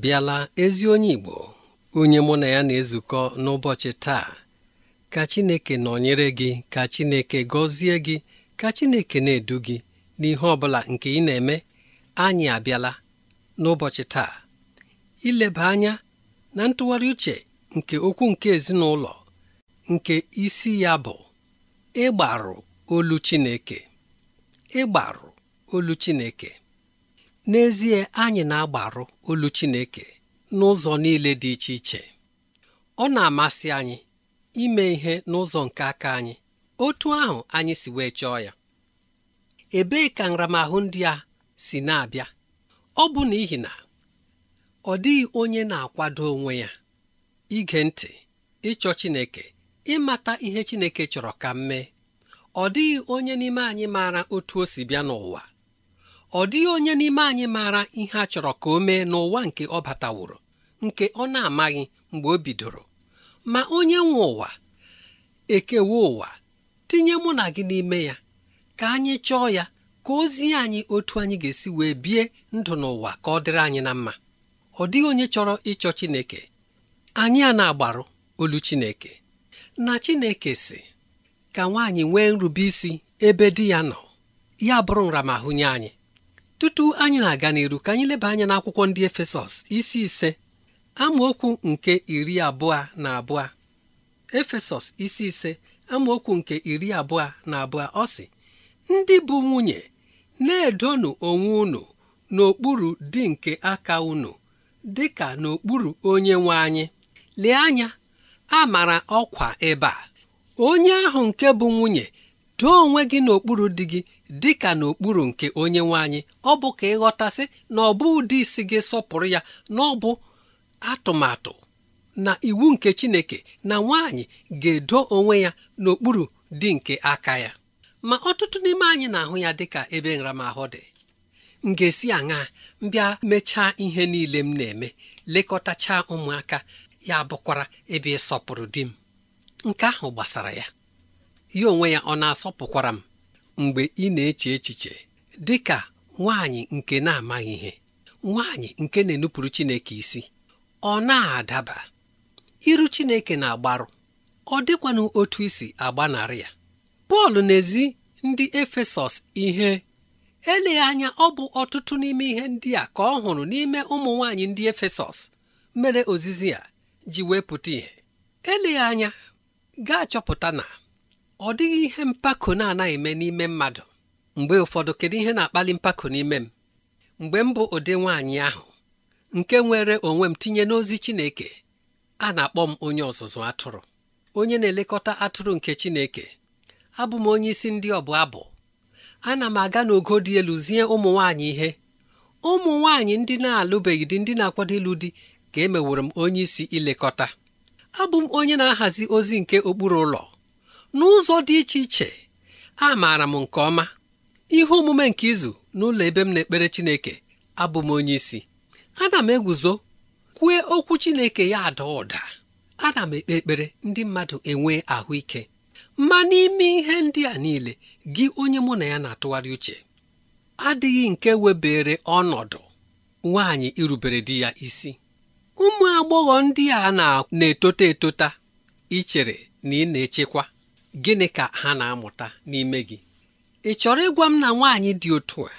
bịala ezi onye Igbo onye mụ na ya na-ezukọ n'ụbọchị taa ka Chineke nọnyere gị ka Chineke gọzie gị ka Chineke na-edu gị n'ihe ọ bụla nke ị na-eme anyị abịala n'ụbọchị taa ileba anya na ntụgharị uche nke okwu nke ezinụlọ nke isi ya bụ ịgbarụ olu Chineke ịgbarụ olu Chineke n'ezie anyị na-agbaru olu Chineke n'ụzọ niile dị iche iche ọ na-amasị anyị ime ihe n'ụzọ nke aka anyị otu ahụ anyị si wee chọọ ya ebee ka nramahụ ndị a si na-abịa ọ bụ n'ihi na ọ dịghị onye na-akwado onwe ya ige ntị ịchọ Chineke ịmata ihe Chineke chọrọ ka m mee ọ dịghị onye n'ime anyị maara otu o si bịa n'ụwa ọ dịghị onye n'ime anyị maara ihe a chọrọ ka o mee n'ụwa nke ọ bataworo nke ọ na-amaghị mgbe o bidoro ma onye nwe ụwa ekewa ụwa tinye mụ na gị n'ime ya ka anyị chọọ ya ka ozi anyị otu anyị ga-esi wee bie ndụ n'ụwa ka ọ dịrị anyị na mma ọ dịghị onye chọrọ ịchọ Chineke anyị a na-agbaru olu Chineke na Chineke si ka nwaanyị nwee nrube isi ebe di ya nọ ya bụrụ nramahụ nye anyị tutu anyị na-aga n'iru ka anyị leba anya n'akwụkwọ ndị Efesọs isi ise amaokwu nke iri abụọ na abụọ Efesọs isi ise amaokwu nke iri abụọ na abụọ ọ sị ndị bụ nwunye na-edonụ onwe unu n'okpuru di nke aka unu dị ka n'okpuru onye nwe anyị lee anya a mara ọkwa ebe a onye ahụ nke bụ nwunye doo onwe gị n'okpuru di gị dị ka n'okpuru nke onye nwe anyị ọ bụ ka ịghọtasị na ọ bụ ụdị isi gị sọpụrụ ya na ọ bụ atụmatụ na iwu nke Chineke na nwaanyị ga-edo onwe ya n'okpuru di nke aka ya ma ọtụtụ n'ime anyị na-ahụ ya dịka ebe nramahụ dị m ga-esi aṅa mbịa mechaa ihe niile m na-eme lekọtachaa ụmụaka ya bụkwara ebe ịsọpụrụ di m nke ahụ gbasara ya ya onwe ya ọ na-asọpụkwara m mgbe ị na-eche echiche dị ka nwaanyị nke na-amaghị ihe nwaanyị nke na-enupụrụ Chineke isi ọ na-adaba iru Chineke na-agbarụ ọ dịkwanụ otu isi agbanarị ya Pọl n'ezi ndị Efesọs ihe eleghị anya ọ bụ ọtụtụ n'ime ihe ndị a ka ọ hụrụ n'ime ụmụ nwaanyị ndị Efesọs mere ozizi ya ji wepụta ihe eleghị anya gaa chọpụta na ọ dịghị ihe mpako na-anaghị eme n'ime mmadụ mgbe ụfọdụ kedu ihe na-akpali mpako n'ime m mgbe m bụ ụdị nwaanyị ahụ nke nwere onwe m tinye n'ozi Chineke a na-akpọ m onye ọzụzụ atụrụ onye na-elekọta atụrụ nke Chineke abụ m onye isi ndị ọbụ abụ ana m aga n'ogo dị elu zie ụmụ nwaanyị ihe ụmụ nwaanyị ndị na-alụbeghị dị ndị na-akwado ịlụ di ka emeworo m onye isi ilekọta abụ m onye na-ahazi ozi nke okpuru ụlọ n'ụzọ dị iche iche a maara m nke ọma ihe omume nke izu n'ụlọ ebe m na-ekpere Chineke abụ m onye isi ana m eguzo kwue okwu Chineke ya ada ụda ana m ekpe ekpere ndị mmadụ enwee ahụike ma n'ime ihe ndị a niile gị onye mụ na ya na-atụgharị uche adịghị nke webere ọnọdụ nwaanyị irubere di ya isi ụmụ agbọghọ ndị a na-etota etota ichere na ị na-echekwa gịnị ka ha na-amụta n'ime gị ị chọrọ ịgwa m na nwaanyị dị otu a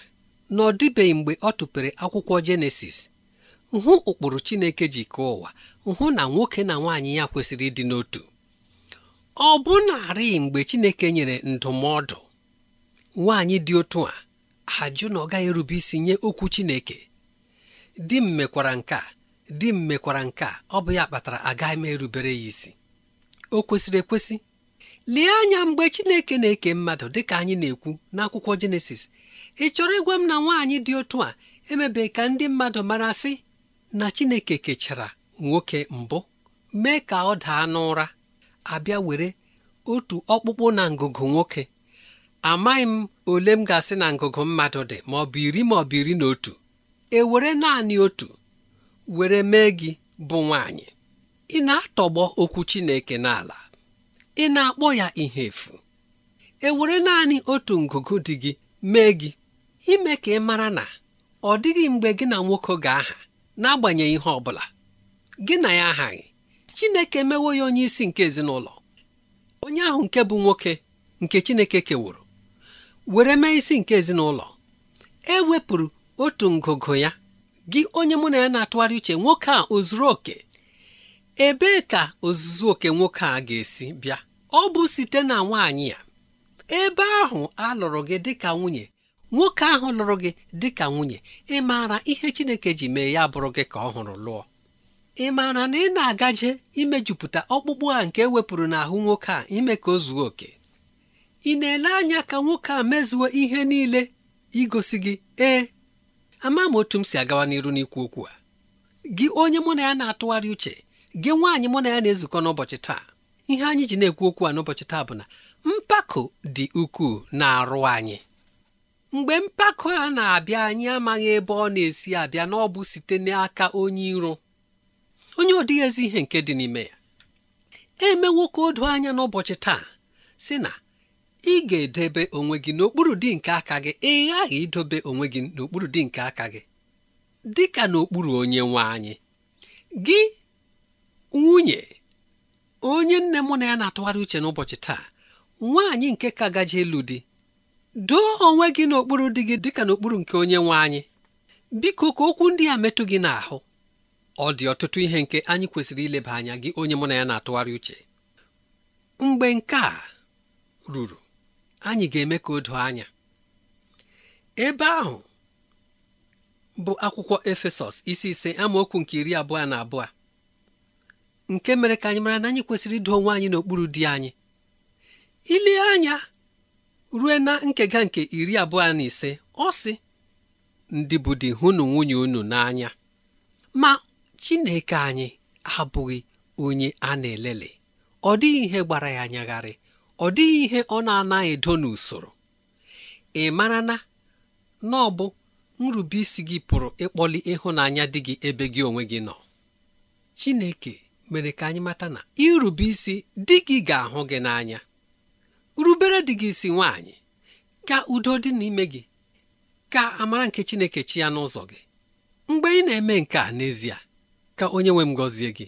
na ọ dịbeghị mgbe ọ tụpere akwụkwọ jenesis hụ ụkpụrụ chineke ji kee ụwa hụ na nwoke na nwaanyị ya kwesịrị ịdị n'otu ọ bụ narị mgbe chineke nyere ndụmọdụ nwaanyị dị otu a ajụ na ọ gaghị erube isi nye okwu chineke di m mekwara nke a di m mekwara nke a ọ bụ ya kpatara agaghị m erubere ya isi o kwesịrị ekwesị lie anya mgbe Chineke na-eke mmadụ dịka anyị na-ekwu n'akwụkwọ Jenesis ị chọrọ ịgwa m na nwaanyị dị otu a emebe ka ndị mmadụ mara sị na Chineke kechara nwoke mbụ mee ka ọ daa n'ụra abịa were otu ọkpụkpụ na ngụgụ nwoke amaghị m ole m ga-asị na ngụgụ mmadụ dị ma ọ bụ iri ma ọ bụ iri na otu e were naanị otu were mee gị bụ nwaanyị ị na-atọgbọ okwu Chineke n'ala ị na-akpọ ya ihe efu ewere naanị otu ngụgụ dị gị mee gị ime ka ị mara na ọ dịghị mgbe gị na nwoke ga-aha n'agbanyeghị ihe ọ bụla gị na ya aghaghị, Chineke emewo ya onye isi nke ezinụlọ onye ahụ nke bụ nwoke nke Chineke kewuru were mee isi nke ezinụlọ e wepụrụ otu ngụgụ ya gị onye mụ na ya na-atụgharị uche nwoke a o zuru oke ebee ka ozuzu oke nwoke a ga-esi bịa ọ bụ site na nwaanyị ya ebe ahụ a lụrụ gị dịka nwunye nwoke ahụ lụrụ gị dịka nwunye ị maara ihe Chineke ji mee ya bụrụ gị ka ọ hụrụ lụọ ị maara na ị na-agaje imejupụta ọkpụkpụ a nke e wepụrụ n'ahụ nwoke a ime ka o zuo oke ị na-ele anya ka nwoke a mezuo ihe niile igosi gị ee ama m otu m si agawa n'iru n'ikwu okwu a gị onye mụ na ya na-atụgharị uche gị nwaanyị mụ na ya na-ezukọ n'ụbọchị taa ihe anyị ji na-ekwu okwu a n'ụbọchị taa bụ na mpako dị ukwuu na-arụ anyị mgbe mpako a na-abịa anyị amaghị ebe ọ na-esi abịa na ọ bụ site n'aka onye iro onye ọ ezi ihe nke dị n'ime ya emewo ka anya n'ụbọchị taa si na ị ga-edebe onwe gị n'okpuru dị nke aka gị ị ghaghị idobe onwe gị n'okpuru dị nke aka gị dị ka n'okpuru onye nwe anyị gị nwunye onye nne mụ na ya na-atụgharị uche n'ụbọchị taa nwaanyị nke ka gaji elu di doo onwe gị n'okpuru di gị dịka n'okpuru nke onye nwe anyị biko ka okwu ndị a metụ gị n'ahụ ọ dị ọtụtụ ihe nke anyị kwesịrị ileba anya gị onye mụ na ya na-atụgharị uche mgbe nke a ruru anyị ga-eme ka o doo anya ebe ahụ bụ akwụkwọ Efesọs isi ise amaokwu nke iri abụọ na abụọ nke mere ka anyị mara na anyị kwesịrị ido onwe anyị n'okpuru di anyị ile anya rue na nkega nke iri abụọ na ise ọ sị ndị bụ di hụnụ nwunye unu n'anya ma Chineke anyị abụghị onye a na-elele ọ dịghị ihe gbara ya anyagharị ọ dịghị ihe ọ na-anaghị edo n'usoro ị mara na na ọ nrubeisi gị pụrụ ịkpọli ịhụnanya dị gị ebe gị onwe gị nọ Chineke mere ka anyị mata na irube isi dị gị ga-ahụ gị n'anya rubere di gị isi nwaanyị ka udo dị n'ime gị ka amara nke Chineke chi ya n'ụzọ gị mgbe ị na-eme nke a n'ezie ka onye nwe m gọzie gị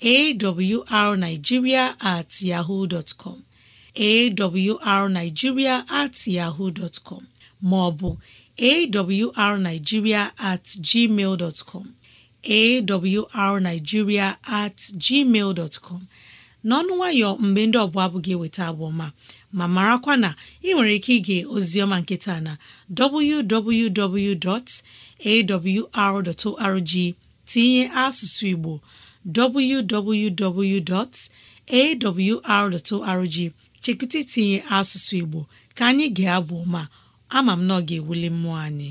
awrnigeria at yahoo dot com at yahoo dot maọbụ awrnigeria at gmail dot com at gmail dot n'ọnụ nwayọ mgbe ndị ọbụla abụ gị eweta abụọma ma marakwa na ị nwere ike ige ozioma nkịta na www.awr.org tinye asụsụ Igbo www.awr.org chekwụta itinye asụsụ Igbo ka anyị ga-abụ ma ama m na ọ ga-ewuli mmụọ anyị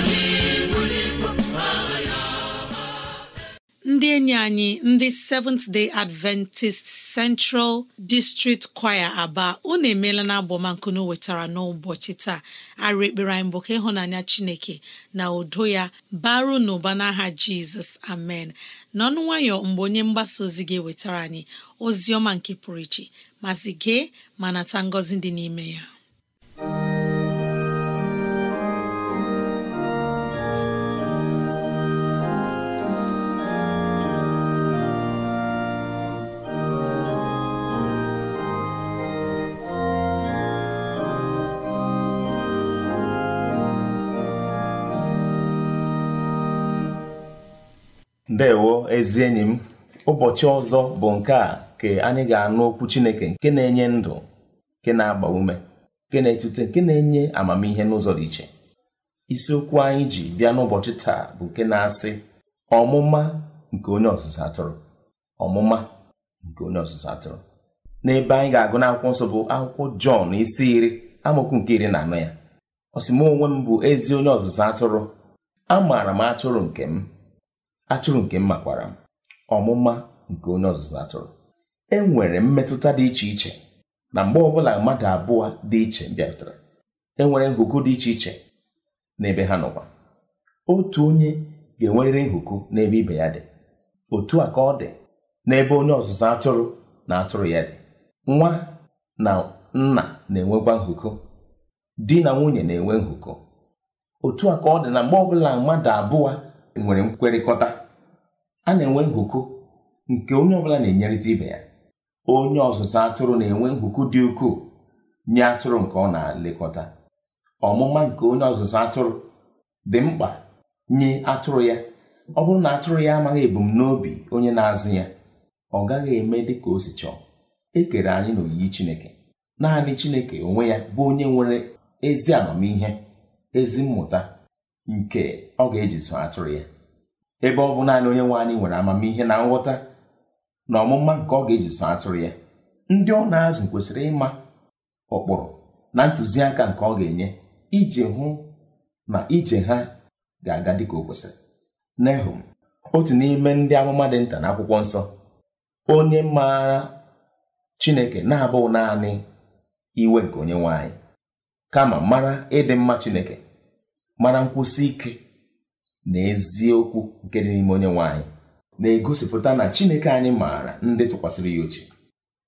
enyi anyị ndị Seventh Day Adventist Central District Choir Aba unu emeela na abọmankunu wetara n'ụbọchị taa arụ ekpere anyị bụ ka ịhụnanya Chineke na udo ya baru n'ụba n'aha Jizọs amen n'ọnụ nwayọ mgbe onye mgbasa ozi gị wetara anyị ozi ọma nke pụrụ iche mazị gee ma nata ngọzi dị n'ime ya ndewo ezi enyi m ụbọchị ọzọ bụ nke a ka anyị ga-anụ okwu chineke nke na-enye ndụ nke na-agba ume nke na-etute nke na-enye amamihe n'ụzọ dị iche isiokwu anyị ji bịa n'ụbọchị taa bụ nke na-asị ọmụma nke onye ọzụzụ atụrụ ọmụma nke onye ọzụzụ atụrụ n'ebe anyị ga-agụ n'akwụkwọ nsọ bụ akwụkwọ jọn isi iri amaokwu nke iri na anọ ya ọ onwe m bụ ezi onye ọzụzụ atụrụ amaara m atụrụ nke m atụrụ nke m makwara m ọmụma nke onye ọzụzụ atụrụ e nwere mmetụta dị iche iche na mgbe ọbụla mmadụ abụọ dị iche bịarutere e nwere nhụkụ dị iche iche n'ebe ha nọkwa otu onye ga-enwerịrị nhụkụ n'ebe ibe ya dị otu a ka ọ dị n'ebe onye ọzụzụ atụrụ na atụrụ ya dị nwa na nna na-enwekwa nhụkụ di na nwunye na-enwe nhụkụ otu a ka ọ dị na mgbe ọbụla mmadụ abụọ nwere nkwekọrịta a na-enwe ngụkọ nke onye ọbụla na-enyerịta ibe ya onye ọzụzụ atụrụ na-enwe ngụkọ dị ukwuu nye atụrụ nke ọ na-elekọta ọmụma nke onye ọzụzụ atụrụ dị mkpa nye atụrụ ya ọ bụrụ na atụrụ ya amaghị ebumnobi onye na-azụ ya ọ gaghị eme dị ka o si chọọ e kere anyị na-oyiyi Chineke naanị Chineke onwe ya bụ onye nwere ezi amamihe ezi mmụta nke ọ ga-eji zụọ atụrụ ya ebe ọ bụ naanị onye nwe anyị nwere amamihe na nghọta na ọmụma nke ọ ga-eji so atụrụ ya ndị ọ na-azụ kwesịrị ịma ụkpụrụ na ntụziaka nke ọ ga-enye iji hụ na ije ha ga-aga dịka o kwesịrị Nehum otu n'ime ndị amụma dị nta n'akwụkwọ nsọ onye maara Chineke na-abụghị naanị iwe nke onye nwe anyị kama mara ịdị mma Chineke mara nkwụsi ike na eziokwu nke dị n'ime onye nwanyị. na-egosipụta na Chineke anyị maara ndị tụkwasịrị ya uche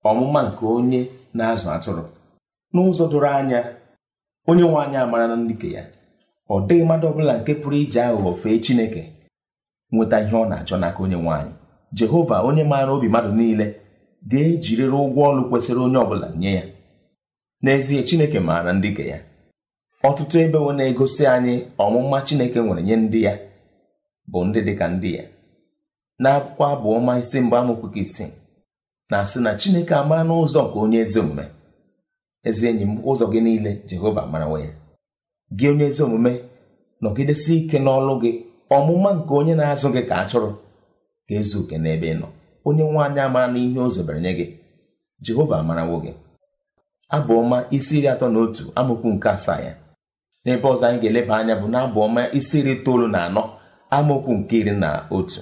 ọmụma nke onye na-azụ atụrụ n'ụzọ doro anya onye nwe anyị amara na ndike ya ọ dịghị mmadụ ọbụla nke pụrụ iji aghụghọ fee Chineke nweta ihe ọ na-achọ n'aka onye nwanyị. Jehova onye maara obi mmadụ niile ga-ejirịrị ụgwọ ọlụ kwesịrị onye ọbụla nye ya n'ezie Chineke maara ndike ya ọtụtụ ebe wo na-egosi anyị ọmụma Chineke nwere nye ndị ya bụ ndị dịka ndị ya n'akwụkwọ abụ ọma isi mbụ amaokwu isi na-asị na Chineke amara n'ụzọ nke onye ezi omume ezi enyi m ụzọ gị niile Jehova marawa ya gị onye ezi omume nọgidesi ike n'ọlụ gị ọmụma nke onye na-azụ gị ka atụrụ ka ezu oke n'ebe ị nọ onye nwe anyị amara na ihe ozobere nye gị Jehova amarawo gị abụ ọma isi iri atọ na otu amaokwu nke asaa ya n'ebe ọzọ anyị ga-eleba anya bụ na ọma isi iri itoolu na anọ amaokwu nke iri na otu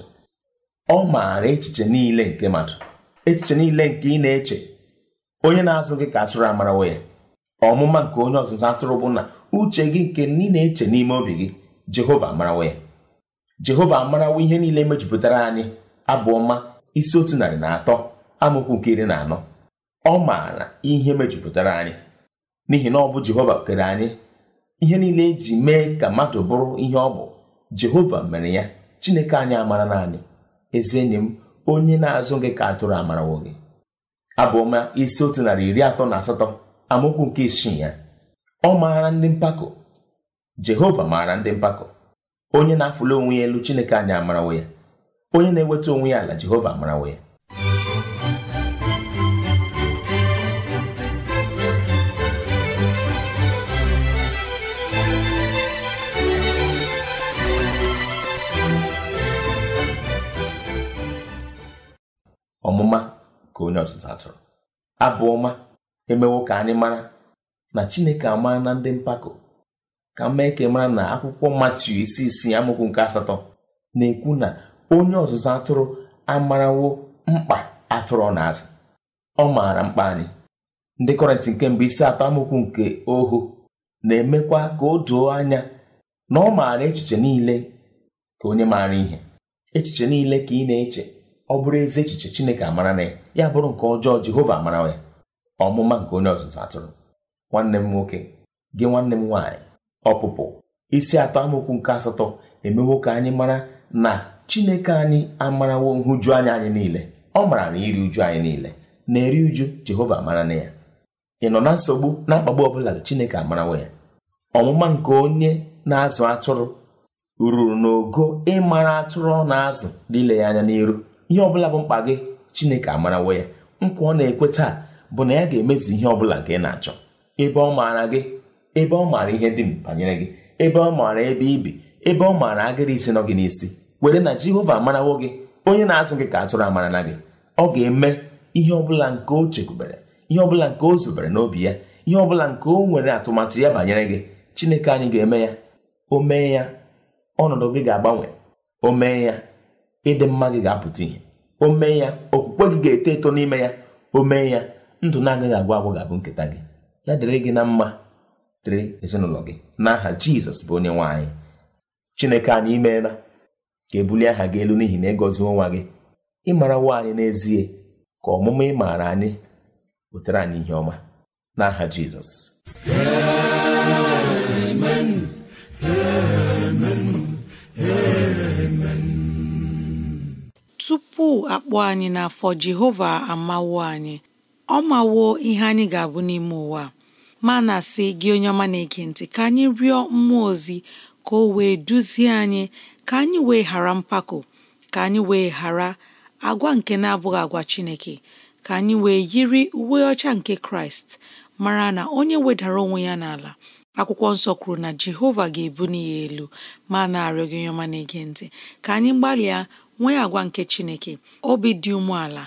ọ maara echiche niile nke mmadụ echiche niile nke ị na-eche onye na-azụ gị ka atụrụ amarawo ya ọmụma nke onye ọzụzụ atụrụ bụ na uche gị nke ị na-eche n'ime obi gị jehova amarawo ya jehova amarawo ihe niile mejupụtara anyị abụ ọma isi otu narị na atọ amaokwu nke iri na anọ ọ maara ihe mejupụtara anyị n'ihi na ọ bụ jehova kere anyị ihe niile eji mee ka mmadụ bụrụ ihe ọ bụ jehova mere ya chineke anyị amara naanị ezi enyi m onye na-azụ gị ka atụrụ amarawo gị abụọma isi otu narị iri atọ na asatọ amaokwu nke isii ya ọ maara ndị mpako jehova maara ndị mpako onye na-afụli onwe ya elu chineke anyị amarawo ya onye na-eweta onwe ya ala jehova amarawo ya ọmụma ka onye ọzụzụ atụrụ abụ ọma emewo ka anyị mara na chineke amara na ndị mpako ka mee ka mara na akwụkwọ matiu isi isii amụkwu nke asatọ na-ekwu na onye ọzụzụ atụrụ amarawo mkpa atụrụ na-azụ ọ maara mkpa anyị ndị kọrịntị nke mbụ isi atọ amụkwu nke ohu na-emekwa ka o doo anya na ọ maara echiche niile ka onye maara ihe echiche niile ka ị na-eche ọ bụrụ ezi echiche Chineke amara na ya ya bụrụ nke ọjọọ Jehova amara ya ọmụma nke onye ọzụzụ atụrụ nwanne m nwoke gị nwanne m nwaanyị ọpụpụ isi atọ amaokwu nke asatọ emewo ka anyị mara na Chineke anyị amarawo nhụju anya anyị niile ọ mara na iri uju anyị niile na-eri uju Jehova amara na ya ị nọ na nsogbu na akpagbu ọbụla Chineke amarawo ya ọmụma nke onye na-azụ atụrụ ruru n'ogo ịmara atụrụ ọ na-azụ dịle ya anya n'iru ihe ọbụla bụ mkpa gị chineke amarawo ya nkwa ọ na-ekwe taa bụ na ya ga-emezu ihe ọbụla gị na-achọ ebe ọ maara gị ebe ọ maara ihe dị banyere gị ebe ọ maara ebe ibi ebe ọ maara agịrị isi nọ gị n'isi were na jehova amarawo gị onye na-azụ gị ka atụrụ amara na gị ọ ga-eme ihe ọbụla nke o chekwubere ihe ọbụla nke o zubere n'obi ya ihe ọbụla nke o nwere atụmatụ ya banyere gị chineke anyị ga-eme ya o mee ya ọnọdụ gị ga-agbanwe o mee ya ịdị mma gị ga-apụta ihe o mee ya okwukwe gị ga-eto eto n'ime ya o mee ya ndụ na-agaghị agwụ agwụ ga-abụ nketa gị ya dịrị gị na mma dịrị ezinụlọ gị n'aha jizọs bụ onye nwaanyị chineke anyị imeela ka ebulie aha gị elu n'ihi na ịgọzi e nwa gị ịmara mara nwaanyị n'ezie ka ọmụmụ maara anyị wetara anyị ihe ọma n'aha jizọs tupu akpọ anyị n'afọ Jehova amawo anyị ọ mawo ihe anyị ga-abụ n'ime ụwa ma na-asị gị onye ọma na-ege ntị ka anyị rịọ mmụọ ozi ka o wee duzie anyị ka anyị wee ghara mpako ka anyị wee ghara agwa nke na-abụghị agwa Chineke ka anyị wee yiri uwe ọcha nke Kraịst mara na onye wedara onwe ya n'ala akwụkwọ nsọ kwuru na Jehova ga ebu ya elu ma na-arịọ gị onye ọma na-ege ntị ka anyị gbalịa nwee agwa nke Chineke obi dị umeala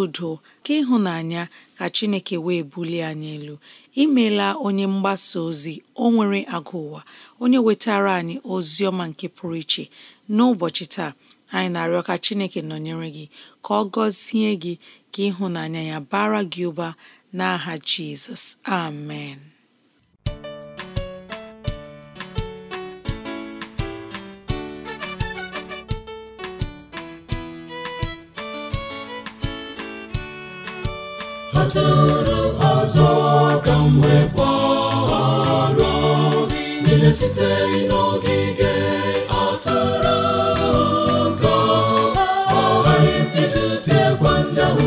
udo ka ịhụnanya ka Chineke wee bulie anyị elu imeela onye mgbasa ozi o nwere agụ ụwa onye wetara anyị ozi ọma nke pụrụ iche n'ụbọchị taa anyị na-arịọ ka Chineke nọnyere gị ka ọ gọzie gị ka ịhụnanya ya bara gị ụba n'aha Jizọs amen atụrụ ọzọ ka m wee kwara niile sitere n'ogige atụrụ ka ọ ghara ibido tegwa ndahụ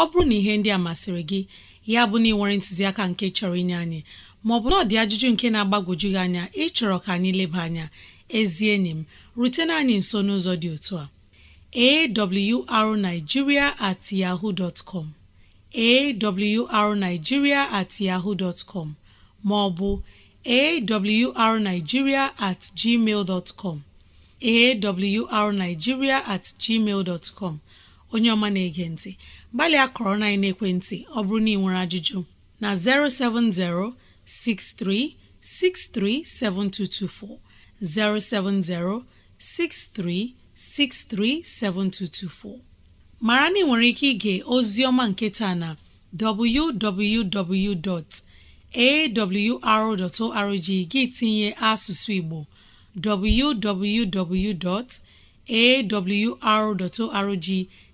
ọ bụrụ na ihe ndị a masịrị gị ya bụ na ị nwere ntụziaka nke chọrọ inye anyị maọbụ na ọ dị ajụjụ nke na agbagoju gị anya ịchọrọ ka anyị leba anya ezi enyi m rutena anyị nso n'ụzọ dị otu a awrnigeria at yahoo dot com awrnigeria at yahoo com maọbụ awrnigeria at gmail com awrnigeria at gmail com onye ọma na-ege ntị gbalịa kọrọ na ekwentị ọ bụrụ na ị nwere ajụjụ na 07063637224 07063637224 mara na ị nwere ike ige ozi ọma nke taa na www.awr.org gị tinye asụsụ Igbo www.awr.org